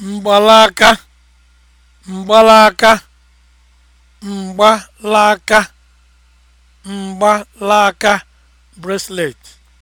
mgbalaka mgbalaka mgbalaka mgbalaka bracelet